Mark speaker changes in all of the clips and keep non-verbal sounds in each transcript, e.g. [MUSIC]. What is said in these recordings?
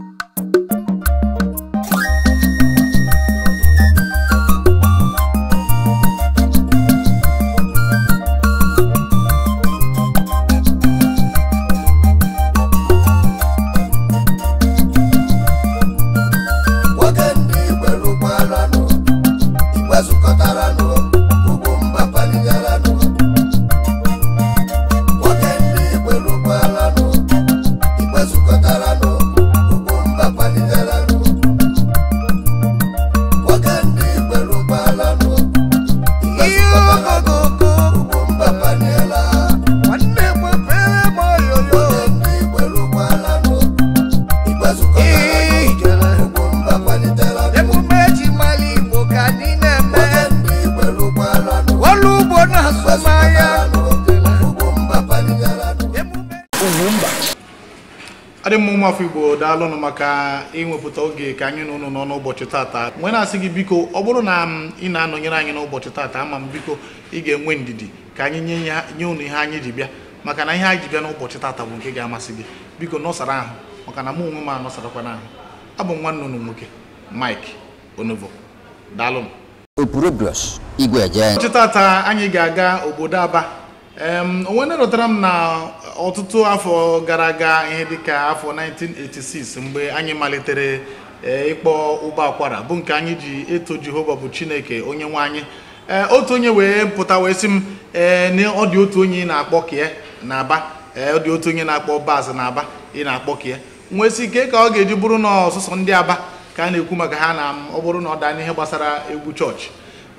Speaker 1: you
Speaker 2: ụmụafọ igbo daalụnụ maka ịnwepụta oge ka anyị nụnụ nọ n'ụbọchị tata nwe na-asị gị biko ọ bụrụ na ị na-anọnyere anyị n'ụbọchị tata ama m biko ị ga-enwe ndidi ka anyị nye ụnụ ihe anyị ji bịa maka na ihe anyị ji bịa n'ụbọchị tata bụ nke ga-amasị gị biko nọsara ahụ maka na mụ onwe m anọsarakwana ahụ abụ m nwanne ụnụ nwoke Mike Onovo daalụnụ ụbọchị tata anyị ga-aga obodo Aba onwe na m na ọtụtụ afọ gara aga ihe dịka afọ 1986 mgbe anyị malitere e, ịkpọ ụgbọ akwara bụ nke anyị ji eto Jehova bụ Chineke onye nwe anyị e, otu onye wee pụta wee sị m e, na ọ dị otu onye ị na-akpọ kie na aba ọ dị otu onye na-akpọ baz na aba ị na-akpọ kie nwee si ike ka ọ ga-eji bụrụ na ọsụsọ ndị aba ka a na-ekwu maka ha na ọ bụrụ na ọ daa n'ihe gbasara egwu chọọchị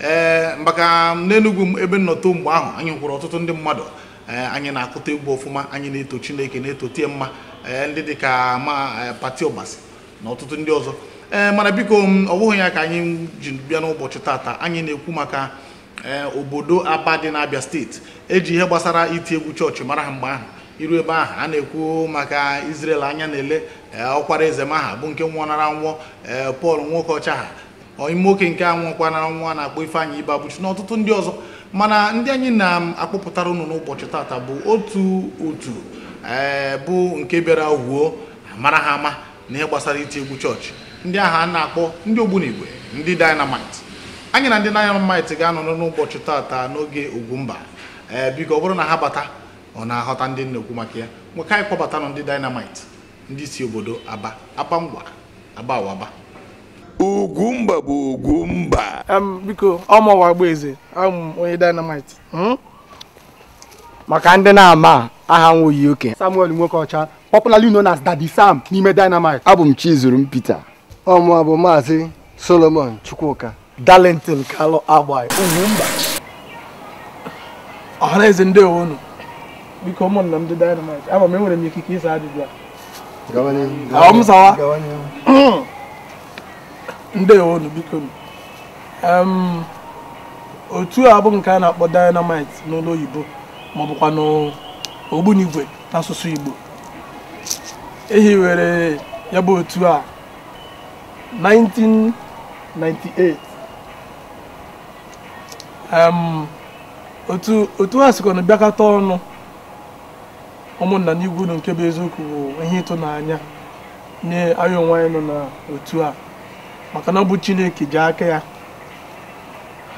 Speaker 2: ee eh, maka n'enugwu ebe nnọtọ mgbe ahụ anyị kwụrụ ọtụtụ ndị mmadụ eh, anyị na-akụta egwu ọfụma anyị na-eto chineke na-eto tie mma eh, ndị dị ka ma pati ọgbasi na ọtụtụ ndị ọzọ ee mana biko ọ bụghị ya ka anyị ji bịa n'ụbọchị taata anyị na-ekwu maka obodo aba dị n'abịa steeti eji ihe gbasara iti egwu chọọchị mara ha mgbe ahụ iru ebe ahụ a na-ekwu maka izrel anya na-ele ọkwara eze maha bụ nke nara nwụọ Pọl Nwokocha ha ime oke nke anwụkwa na nwa na-akpọ Ifeanyị Ibe abụchi na ọtụtụ ndị ọzọ mana ndị anyị na-akpọpụtara ụnụ n'ụbọchị tata bụ otu otu ee eh, bụ nke bịara wuo mara ha ama na ihe gbasara iti egwu chọọchị ndị ahụ a na-akpọ ndị ogbunigwe ndị dinamit anyị na ndị dynamite ga-anọ n'ụbọchị tata n'oge Ugwumba ee eh, biko ọ bụrụ na ha bata ọ na-aghọta ndị nnekwu maka ya nweka anyị kpọbatanụ ndị dinamit ndị si obodo aba aba ngwa aba awaba
Speaker 1: ogumba bụ
Speaker 3: ogumba biko ọmụwa Ogbueze eze, ọmụ onye dynamite hmm?
Speaker 4: maka ndị na-ama aha nwoyi oke
Speaker 3: Samuel nwoke ọcha popularly known as
Speaker 5: Daddy
Speaker 6: Sam n'ime
Speaker 7: dynamite abụ m Chizurum Peter
Speaker 6: ọmụwa bụ maazị Solomon Chukwuka Darlington Kalu Agbayi Ogumba
Speaker 3: ọhaneze ndị owonu biko ụmụnna m dị dynamite ama m enwere m ikike ịsa ajụjụ
Speaker 6: a
Speaker 3: ndewonu biko otu a bụ nke a na-akpọ dynamite n'ụlọ oyibo ma ọ bụkwa n'ogbunigwe n'asụsụ igbo ehiwere ya bụ otu a 1998 otu ha sikwa na bịakọta ọnụ ụmụnna n'igwu nke bụ eziokwu bụ ihe ịtụnanya nye anyị onwe anyị nọ n'otu a maka na ọ bụ chineke ji aka ya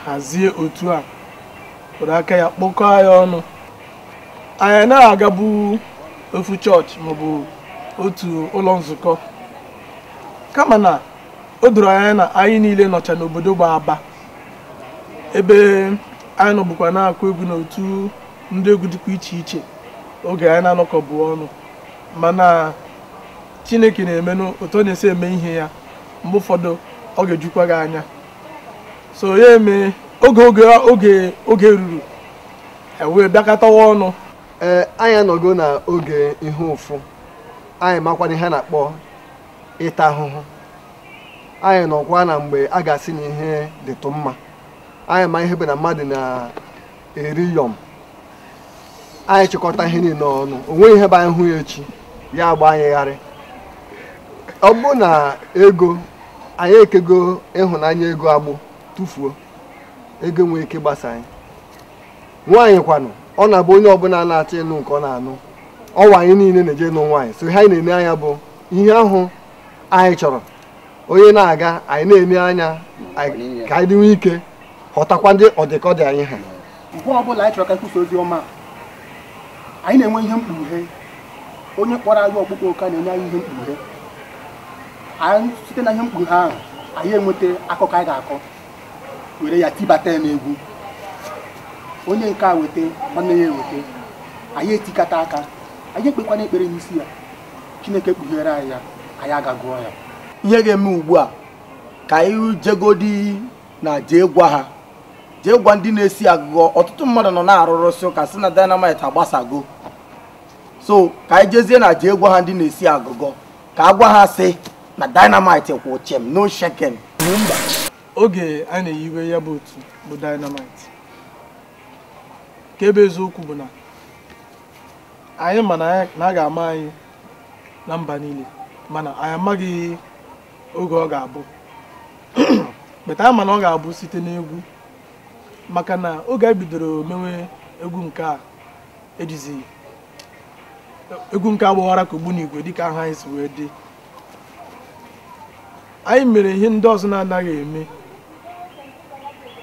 Speaker 3: hazie otu a were aka ya kpọkọọ ya ọnụ anyị na agabu ofu chọọchị maọbụ otu ụlọ nzukọ kama na o doro anya na anyị niile nọcha n'obodo gba aba ebe anyị nọbụkwa na-akụ egwu n'otu ndị egwu dịkwa iche iche oge anyị na-anọkọbụ ọnụ mana chineke na-emenụ otu ọ na-esi eme ihe ya mgbe ụfọdụ ọ ga-ejukwa gị anya so ya eme oge oge oge oge ruru e
Speaker 6: wee bịakọtawa ọnụ ee anyị anọgo na oge ihe ụfụ anyị makwana ihe na-akpọ ịta ahụhụ anyị nọkwa na mgbe a ga-asị na ihe dịtụ mma anyị ma ihe bụ na mmadụ na-eri yọm anyị chịkọta ihe niile ọnụ o nweghị ihe bụ anyị hụ ya echi ya agba anyị gharị ọ bụ na ego anyị ekego ịhụnanya ego agbụ tụfuo ego nwee ike gbasa anyị nwaanyị kwanụ ọ na-abụ onye ọbụla na-achọ ịnụ nke ọ na-anụ ọwa anyị niile na-eje nụ nwaanyị so ihe anyị na eme anya bụ ihe ahụ anyị chọrọ onye na-aga anyị na eme anya ka anyị dịnwe ike ghọtakwa ndị ọdịkọdị anyị ha mgbe ọbụla anyị chọrọ ka e kwusa
Speaker 5: ozi ọma anyị na-enwe ihe mkpughe onye kpọrọ anyị ọkpụkpọ ụka na-enye anyị ihe mkpughe anyị site na ihe mkpughe ahụ anyị enweta akụkọ anyị ga-akọ were ya tibata ya n'egwu onye nke a weta nwanne ya eweta anyị etikata aka anyị ekpekwana ekpere n'isi ya chineke
Speaker 4: kpughere anyị ya anyị agagụọ ya ihe ga-eme ugbu a ka anyị jegodi na jee gwa ha jee gwa ndị na-esi agụgọ ọtụtụ mmadụ nọ na-arụrụsị ụka si na dynamite agbasago so ka anyị jezie na jee gwa ha ndị na-esi agụgọ ka a gwa ha sị na dynamite kwụ chem no sheken mba
Speaker 3: oge a na-eyiwe ya bụ otu bụ dynamite ka ebe eziokwu bụ na anyị ma na a ga-ama anyị na mba niile mana anyị amaghị oge ọ ga-abụ [CLEARS THROAT] beta anyị ma na ọ ga-abụ site n'egwu maka na oge a bidoro mewe egwu nke a ejizi egwu nke agbaghara ka ogbu n'igwe dịka aha anyị si wee dị anyị mere ihe ndị ọzọ na-anaghị eme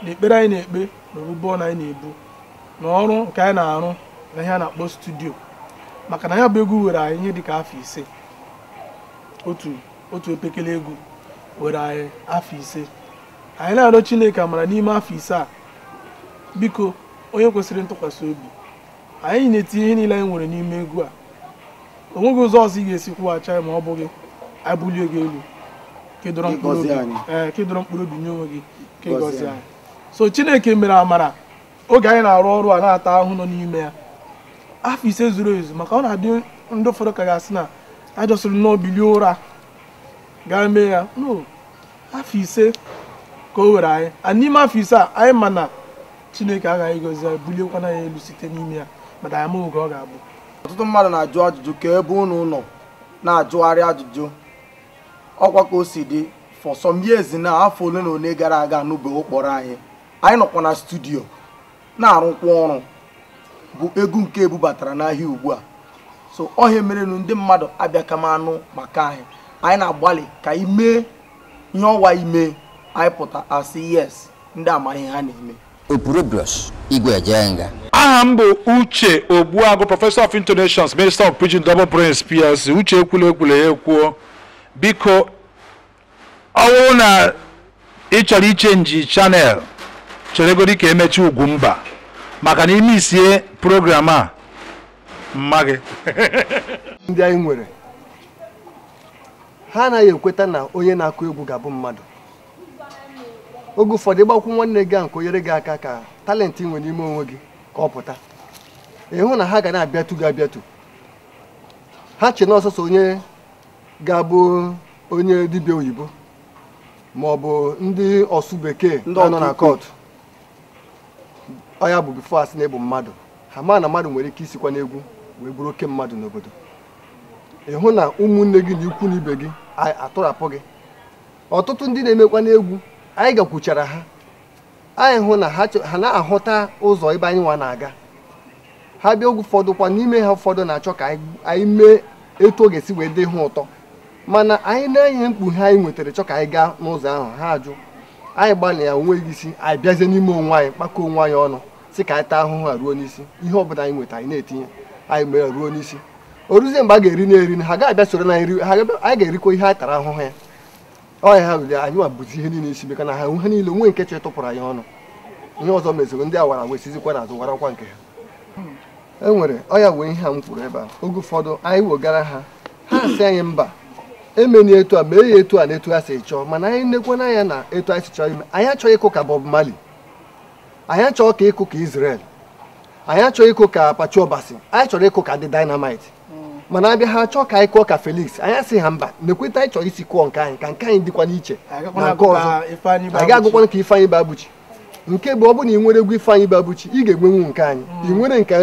Speaker 3: na ekpere anyị na-ekpe na anyị na-ebu na ọrụ nke anyị na-arụ na ihe a na-akpọ studio maka na ya bụ egwu were anyị ihe dịka afọ ise otu otu egwu were anyị afọ ise anyị na-arịọ Chineke amara n'ime afọ ise a biko onye kwesịrị ntụkwasị obi anyị na-etinye ihe niile anyị nwere n'ime egwu a o ụzọ ọzọ ị ga-esi kwụghachi anyị ma ọ bụghị anyị bulie gị elu kedoro mkpụrụ obi nye onwe gị ka gọzie anyị so chineke mere amara oge anyị na-arụ ọrụ a na-ata ahụ nọ n'ime ya afọ ise zuru ezu maka ọ na-adị ndị ụfọdụ ka ga-asị na ajọsịrị nnọọ bilie ụra gaa mee ya no afọ ise ka o were anyị a n'ime afọ ise a anyị ma na chineke agaghị gọzi bulie buliekwana ya elu site n'ime ya mana anyị amaghị oge ọ ga-abụ ọtụtụ mmadụ na-ajụ ajụjụ ka ebe ụnụ nọ
Speaker 4: na-ajụgharị ajụjụ ọkwa ka o si dị for some years na afọ ole na ole gara aga anụbeghị ụkpọrọ anyị anyị nọkwa na studio na-arụkwa ọrụ bụ egwu nke ebubatara n'ahịa ugbu a so ọhịa merenụ ndị mmadụ abịa kamanụ maka anyị anyị na-agbalị ka anyị mee ihe ọwa ime anyị pụta asị yes ndị amaghị ha na-eme
Speaker 1: aha m bụ
Speaker 2: uche ogbuagụ prọfesọ of intonations minister of pidgin double prince plc uche ekwula ya ekwuo biko ọ na ị chọrọ ichenji chanel cheregodi ka emechi mba maka na ime isie
Speaker 6: program a mma gị [LAUGHS] ndị anyị nwere ha anaghị ekweta na onye na-akụ egwu ga-abụ mmadụ oge ụfọdụ ịgbakwụ nwanne gị a nke onyere gị aka ka talenti nwere n'ime onwe gị ka ọ pụta ịhụ na ha ga na-abịatu gị abịatu ha chi na ọsọsọ onye ga-abụ onye dibịa oyibo ma ọ bụ ndị ọsụ bekee nọ na kọtụ ọya bụ bifo asị na ebu mmadụ ha ma na mmadụ nwere ike isikwa n'egwu wee bụrụ oke mmadụ n'obodo ịhụ na ụmụnne gị na ikwu na ibe gị atụrapụ gị ọtụtụ ndị na-emekwa n'egwu anyị gakwuchara ha anyị hụ na ha na-ahụta ụzọ ebe anyị nwa na-aga ha bịa oge ụfọdụ kwa n'ime ha ụfọdụ na-achọ ka anyị mee etu ọ ga-esi wee dị ha ụtọ mana anyị na-enye mkpughe anyị nwetara chọ ka anyị gaa n'ụzọ ahụ ha ajụ anyị gbalịa ya onweghị isi anyị bịazie n'ime onwe anyị kpakọ onwe anyị ọnụ si ka anyị taa ahụhụ a ruo n'isi ihe ọbụla anyị nweta anyị na-etinye anyị mere ruo n'isi o mgbe a ga-eri na-eri ha ga-abịa soro na nri anyị ga-erikwa ihe anyị tara ahụhụ ya ọnya ha bụzi anyị bụzi ihe niile isi meka na ha ha niile nwe nkechi ịtụpụrụ anyị ọnụ ihe ọzọ mezoro ndị awara wesizikwa na azụ warakwa nke ha e nwere ọya wee ihe a m kwuru ebe a oge ụfọdụ anyị wegara ha ha anyị mba emeni etu a ma ya etu a na etu a si chọọ mana anyị nekwana anya na etu anyị si chọọ ime anyị achọ ịkụ ka Bob mali anyị achọ ka ịkụ ka Israel anyị achọ ịkụ ka Apache Obasi anyị chọrọ ịkụ ka ndị Dynamite mm. mana abịa ha achọ ka anyị kụọ ka Felix anyị asị ha mba na anyị chọrọ isi kụọ nke anyị ka nke anyị dịkwa n'iche na nke ọzọ anyị ga-agụkwana ka Ifeanyi Babuchi nke bụ ọ bụ na ị nwere egwu Ifeanyi Babuchi ị ga-enwenwu nke anyị ị nwere nke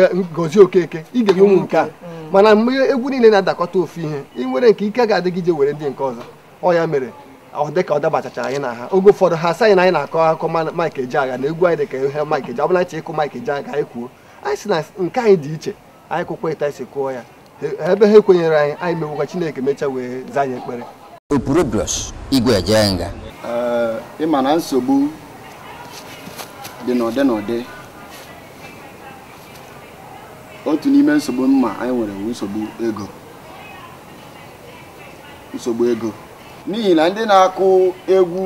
Speaker 6: Okeke ị ga-enwenwu nke a mana mgbe egwu niile na-adakọta ofu ihe ị nwere nke ike ga-adịgide were ndị nke ọzọ ọ ya mere ọ dịka ọ dabachachara anyị na ha oge ụfọdụ ha asaghị na anyị na-akọ akụkọ Mike agha na egwu anyị dịka ihe Mike Ejeagha ọbụla ịkụ Mike Ejeagha agha anyị kwuo anyị si na nke anyị dị iche anyị kwụkwa ịta isi kụọ ya ebe ha ekwenyere anyị anyị mewekwa Chineke mechaa wee zaa anyị ekpere
Speaker 7: opurobios igwe
Speaker 6: ịma na nsogbu
Speaker 7: dị n'ụdị n'ụdị otu n'ime nsogbu mma anyị nwere bụ nsogbu ego nsogbu ego n'ihi na ndị na-akụ egwu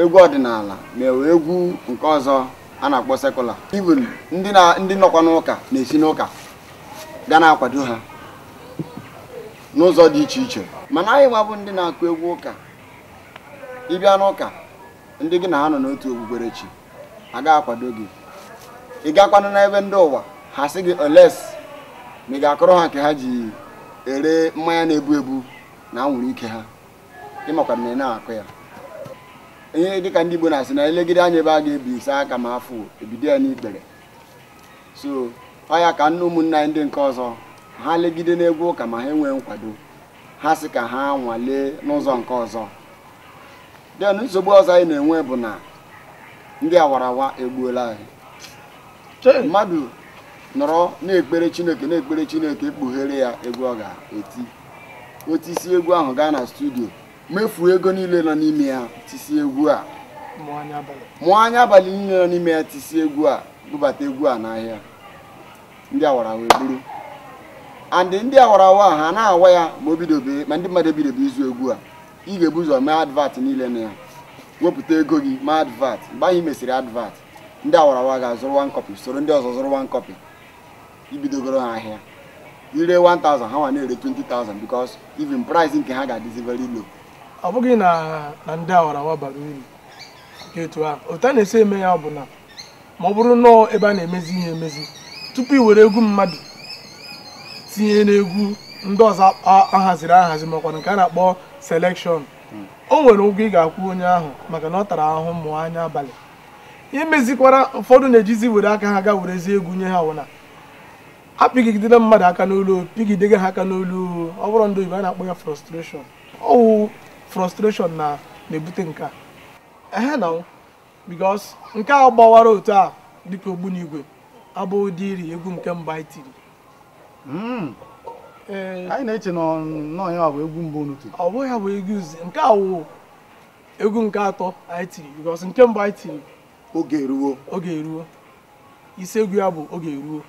Speaker 7: egwu ọdịnala mewe egwu nke ọzọ a na-akpọ sekụla even ndị ndị nọkwa n'ụka na-esi n'ụka ga na-akwado ha n'ụzọ dị iche iche mana anyị nwabụ bụ ndị na-akụ egwu ụka ịbịa n'ụka ndị gị na ha nọ n'otu okpukperechi a ga-akwado gị ị gakwanụ n'ebe ndị ụwa ha sị gị oles ma ị ga-akọrọ ha nke ha ji ere mmanya na-ebu ebu na anwụrụ ike ha ịmakwa na ị na-akụ ya ihe dịka ndị Igbo na-asị na elegide anya ebe a ga-ebisa ebi aka ma afụ ebido ya n'ikpere so ọ ya ka nne ụmụnna anyị ndị nke ọzọ ha legide n'egwu ụka ma ha enwee nkwado ha sị ka ha nwalee n'ụzọ nke ọzọ den nsogbu ọzọ anyị na-enwe bụ na ndị awarawa egbuola anyị mmadụ nọrọ na-ekpere chineke na-ekpere chineke kpughere ya egwu ọ ga-eti o egwu ahụ gaa na studio mefuo ego niile nọ n'ime ya tisi egwu a mụọ anya abalị niile nọ n'ime ya tisi egwu a bụbata egwu a n'ahịa ndị awarawa eburu andị ndị awarawa ha na-awa ya ma o ma ndị mmadụ ebidobe izu egwu a ị ga-ebu ụzọ mee advat niile na ya wepụta ego gị mee advat mgbe anyị mesịrị advat ndị awarawa ga-azụrụ wan copy soro ndị ọzọ zụrụ wan copy ibidogoro ha ahịa ire 1000 ha nwa na-ere 20000 because
Speaker 3: even price nke ha ga-adịzi very low ọ bụghị na na ndị awarawa bara uru nke etu ahụ otu a na-esi eme ya bụ na ma ọ bụrụ nnọọ ebe a na-emezi ihe emezi tupu i were egwu mmadụ tinye n'egwu ndị ọzọ ahaziri ahazi makwa nke a na-akpọ selekshọn o nwere ụgwọ ị ga-akwụ onye ahụ maka na ọ tara ahụhụ mmụọ anya abalị imezikwara ụfọdụ na-ejizi were aka ha ga werezie egwu nye ha wụna ha pigidela mmadụ aka n'olu pigidega ha aka n'olu ọ bụrụ ndị oyibo a na-akpọ ya frustration ọwụ frustration na na-ebute nke a ehe na because nke a gbawara otu a dịka ogbunigwe abụ ụdị iri egwu nke mba anyị tiri hmm. eh, anyị na-eche na ya bụ egwu mbụ unu tiri ọ bụghị ya bụ egwu nke a wụ egwu nke atọ anyị tiri because nke mbụ anyị tiri oge eruwo oge eruwo isi egwu ya bụ oge eruwo.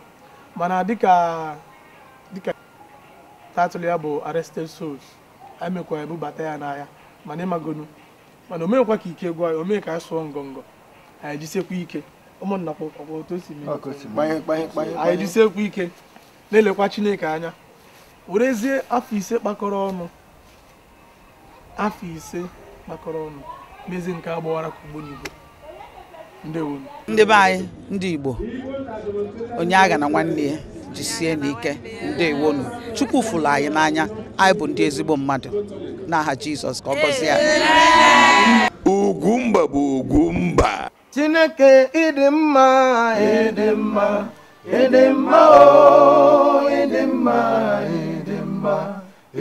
Speaker 3: mana dịka dịka tatụl ya bụ arrested souls emekwa ebubata ya n'ahịa mana ịmagonu mana omekwa ka ike gwa ya mee ka anyị sụọ ngọngọ anyị jisekwa ike ụmụnna anyị jisekwa ike na-elekwa chineke anya werezie afọ ise kpakọrọ ọnụ afọ ise kpakọrọ ọnụ mezi nke agbawara ka ugbo n'igbo ndị be anyị ndị igbo onye agha
Speaker 4: na nwanne ya jisie n'ike ndewonu chukwu fụlụ anyị n'anya anyị bụ ndị ezigbo mmadụ n'aha jizọs ka ọ gọzie anyị ugwumba bụ
Speaker 1: ugwumba chineke ịdị mma ịdị mma ịdị mma ịdị mma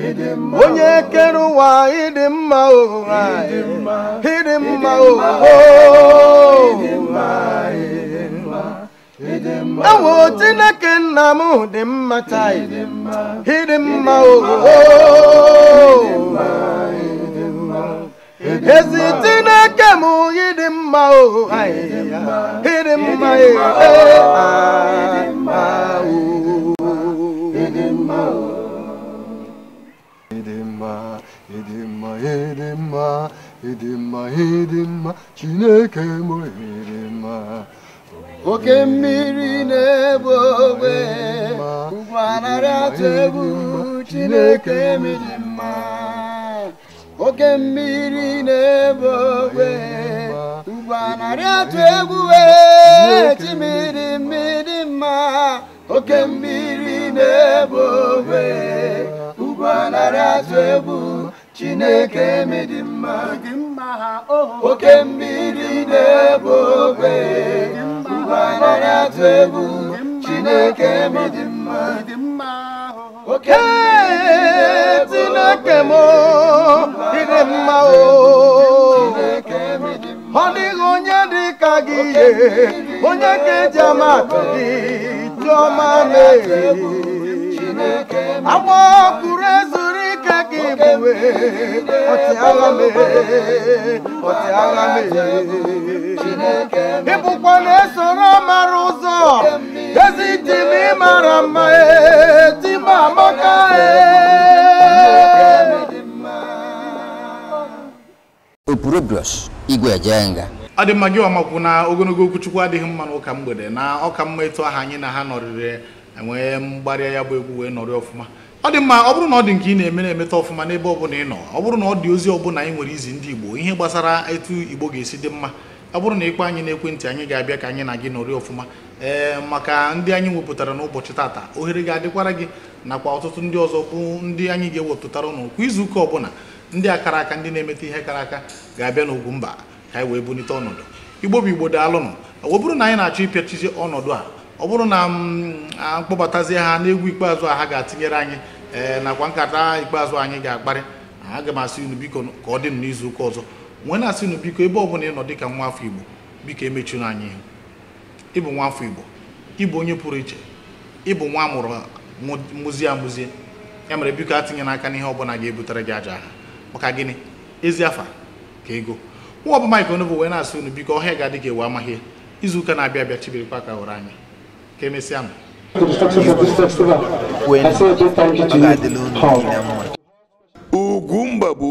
Speaker 1: ịdị mma onye kere ụwa ịdị mma mma ịdị mma ụwa ewo chineke nna m dị mma taa ịdị mma ooo ezi chineke m ịdị mma ooo ịdị mma ee ịdị
Speaker 6: mma chineke m ịdị mma oke mmiri na-ebu
Speaker 7: ogbe Ugbo anaghị atụ egwu chineke miri mma oke mmiri na-ebu ogbe
Speaker 1: Ugbo anaghị atụ egwu eh, chimiri mmiri mma oke mmiri na-ebu ogbe Ugbo anaghị atụ egwu chineke miri mma oke mmiri na-ebu ogbe atụ egwu chineke m dị mma oke chineke m ịdị mma o ọ dịghị onye dị ka gị ihe onye ka eji ama atụ gị chiọma mee agba ọkụrụ ezuru ike gị bụwe ọtịagha mee ọtịagha mee ịbụkwa na-esoro mara ụzọ ezi tim ịmara mma etim amaka
Speaker 7: opurobios igwe ejenga
Speaker 2: adị mma gị ọmakwu na ogologo okwuchukwu adịghị mma n'ụka mgbede na ọka mma etu aha anyị na ha nọrịrị enwee mgbarịa ya bụ egwu wee nọrị ọfụma ọ dị mma ọ bụrụ na ọ dị nke ị na-eme na-emeta ọfụma n'ebe ọbụla ị nọ ọ bụrụ na ọ dị ozi ọbụla anyị nwere izi ndị Igbo ihe gbasara etu Igbo ga-esi dị mma ọ bụrụ na ịkpọ anyị n'ekwentị anyị ga-abịa ka anyị na gị nọrị ọfụma ee maka ndị anyị wepụtara n'ụbọchị tata ohere ga-adịkwara gị nakwa ọtụtụ ndị ọzọ bụ ndị anyị ga-ewepụtara ụnụ kwa izuụka ọbụla ndị akara aka ndị na-emeta ihe kara aka ga-abịa mba ka anyị wee bulite ọnọdụ Igbo bụ Igbo ọ bụrụ na anyị na-achọ ịpịachizi ọnọdụ a ọ bụrụ na m mm, mkpọbatazie ha n'egwu ikpeazụ a ha ga-atinyere anyị ee eh, nakwa nkata ikpeazụ anyị ga-akparị aga m asị unu biko ka ọ dị n'izu ụka ọzọ nwee na-asị unu biko ebe ọ bụla ị nọ dị ka nwa afọ igbo biko emechuru anyị ihu ịbụ nwa afọ igbo ịbụ onye pụrụ iche ịbụ nwa amụrụ mụzie amụzie ya mere biko atinyela aka n'ihe ọbụla ga-ebutere gị aja ha maka gịnị ezi afa ka ego nwa ọbụma ikonobo wee na-asị unu biko ọhịa ga-adị ewu amaghị izu ụka na-abịa abịa chibirikwa ka hụrụ anyị ka emesịa
Speaker 1: Ugumba bụ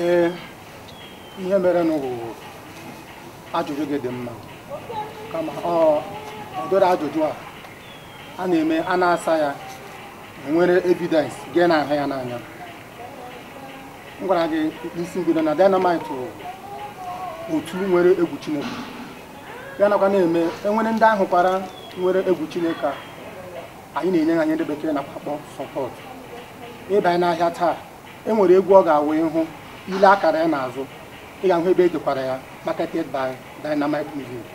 Speaker 1: ee
Speaker 5: eh, ihe mere ajụjụ gị dị mma kama ọ dọrọ ajụjụ a a na-eme a na-asa ya nwere evidence gị na-ahụ ya n'anya m gwara gị isi mbido na otu nwere egwu Chineke ya nakwa na-eme enwere ndị ahụ kwara nwere egwu chineke a anyị na-enye ya ihe ndị bekee na akpọ sọpọt ịbanye n'ahịa taa e nwere egwu ọ ga-awụ ịhụ ile akara ya n'azụ ị ga-ahụ ebe edekwara ya marketed by Dynamite Music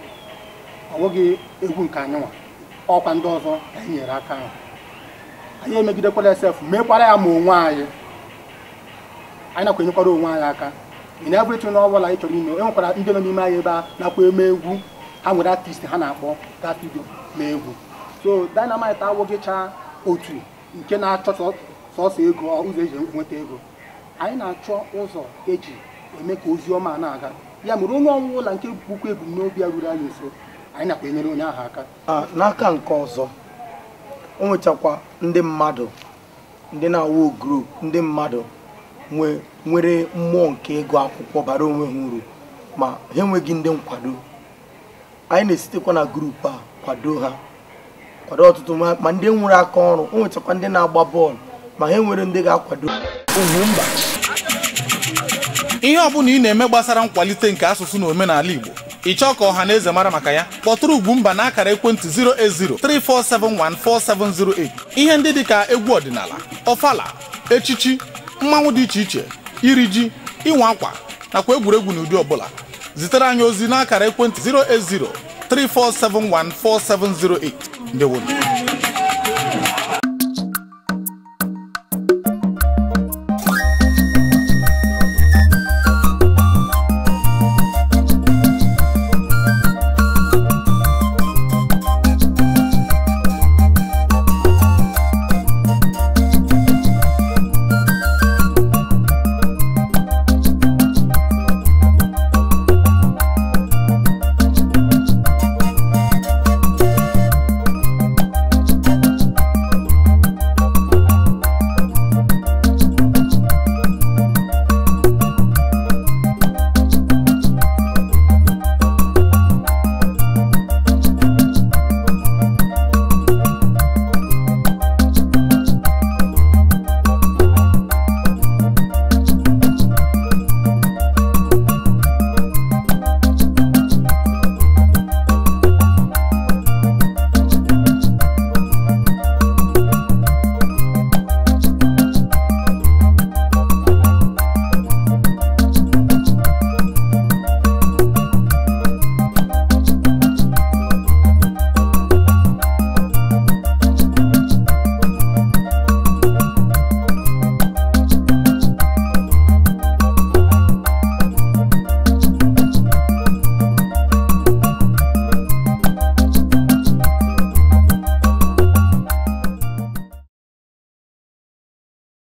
Speaker 5: ọ bụghị egwu nke anyị nwa ọkwa ndị ọzọ anyị nyere aka ahụ anyị emegidekwala esef mekwara ya ma onwe anyị anyị nakwa enyekwara onwe anyị aka ị na ọ n'ọbụla anyị chọrọ ime e nwekwara ndị nọ n'ime anyị ebe a nakwa eme egwu ha nwere artist ha na-akpọ davido na egwu so dynamite awụgịcha otu nke na-achọ sọsọ ego ụzọ eji nweta ego anyị na-achọ ụzọ eji eme ka ozi ọma na-aga
Speaker 4: ya mere onye ọnwụ ụlọ nke bụkwa ebumnobi ya ruru anyị nso anyị nakwa enyere onye ahụ aka ah, n'aka nke ọzọ o nwechakwa ndị mmadụ ndị na-awụ grup ndị mmadụ nwere mmụọ nke ego akwụkwọ bara onwe ha uru ma ha enweghị ndị nkwado anyị na-esitekwa na grupu a kwado ha kwado ọtụtụ ma ndị nwere aka ọrụ o nwechakwa ndị na-agba bọọlụ ma ha nwere ndị
Speaker 2: ga-akwado mba ihe bụla ị na-eme gbasara nkwalite nke asụsụ na omenala Igbo ị chọọ ka ọha na eze mara maka ya kpọtụrụ Ugwumba na akara ekwentị 08034714708 ihe ndị dịka egwu ọdịnala ọfala echichi mmanwụ dị iche iche iri ji ịnwa akwa nakwa egwuregwu n'ụdị ọbụla zitere anyị ozi n'akara ekwentị 080 34714708 ndewo